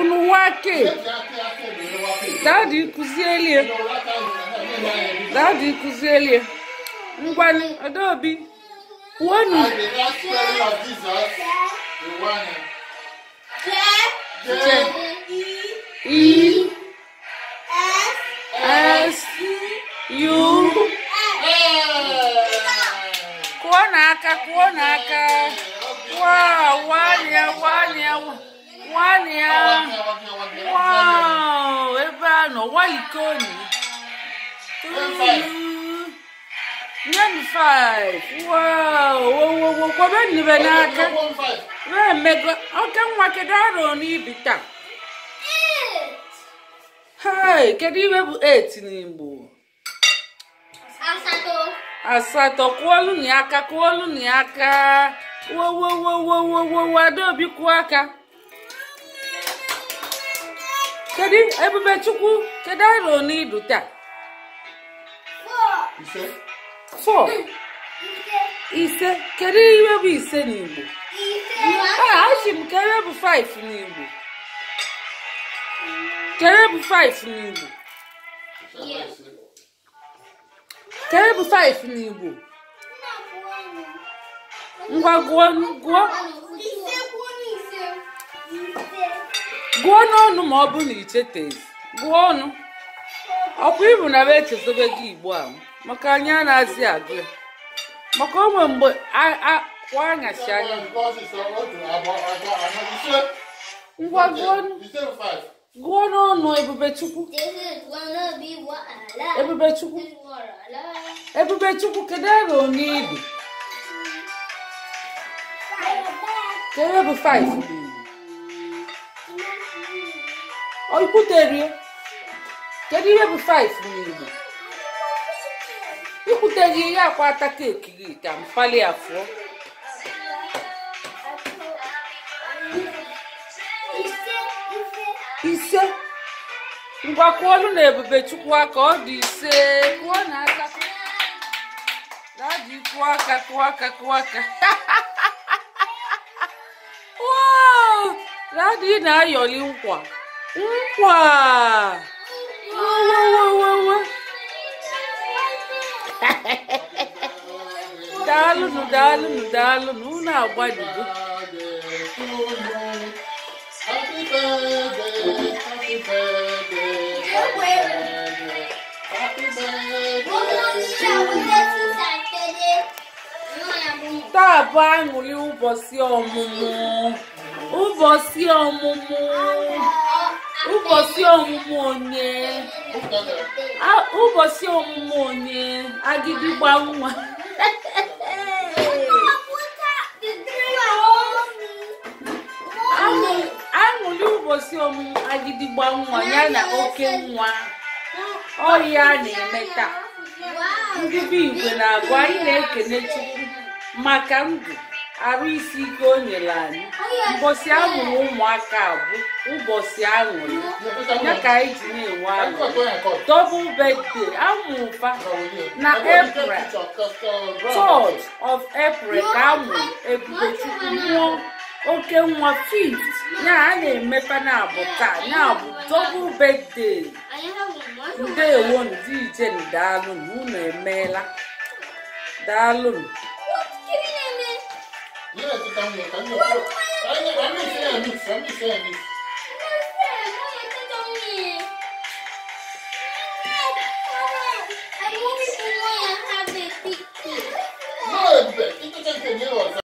unu wake dadi kụzielie dadi kụzielie ngwanị adaobi kwuonu e s u kụọ n'aka kụọ n'aka wa wa ya wa ya wa nwanne ya ebe a nọ walikoni nyem 5 kwabenibe n'aka wee mego oke nwa kedu arọ n'ibi taa hei kedu iwe bụ 8 n'igbo asatọ kụọlụ na aka kwụọlụ na aka aka kedu ebube chukwu kedu arọ n'idu taa fọ ise hmm. kedu iwe bụ ise n'igbo achị m kere bụ 5 n'igbo kere bụ 5 n'igbo kere bụ 5 n'igbo ngwa gụọ gụọ gụọ n'ọnụ ma ọ bụrụ na icheteghị gụọ ọnụ ọkwa ịbụ na echezobe gị igbo a maka anyị a na-azị agụ ya maka onwe mgbe kwaghachi anya ngwa gụọ n'ọnụ ebubechukwu ebubechukwu ebubechukwu kedu ebe onye ibi kedu ebe 5 ọ ikwuterie kedu ihe bụ 5 n'Igbo ikwuterie ya akwa ata keeki gị ka mkpali afọ ise ngwa kụọlụ na ebube chukwu aka ọ dị ise kụọ na aka na adị kụọ aka kụọ aka kụọ aka na adị na-ayọli nkwa No, Опа! daalụnụ daalụnụ daalụnụ unu agbajigo taa bụ aṅụrị ụbọchị ọmụmụ ụbọchị ọmụmụ ụbọchị ọmụmụ onye ụbọchị ọmụmụ onye agịdịgba nwa aṅụli ụbọchị ọmụmụ agịdịgba nwa ya na oke nwa ọhịa na-eme taa ndị be igwe na-agwa anyị na-ekene chukwu maka ndụ arụ isi ike o nyere anyị mbọsị ahụrụ ụmụaka bụ ụbọchị aṅụrị ya ka anyị ji na-enwe aṅụ double birthday amụrụ na epre 3 of epre ka amụrụ ebubechukwu nwụọ oke nwa fift ya a na-emepe na abụ taa ya bụ double birthday ndewo ndị ije daalụ unu emeela daalụ You have to come here. Come here. I'm not saying a mix. I'm not saying a mix. No, but you can't get me on.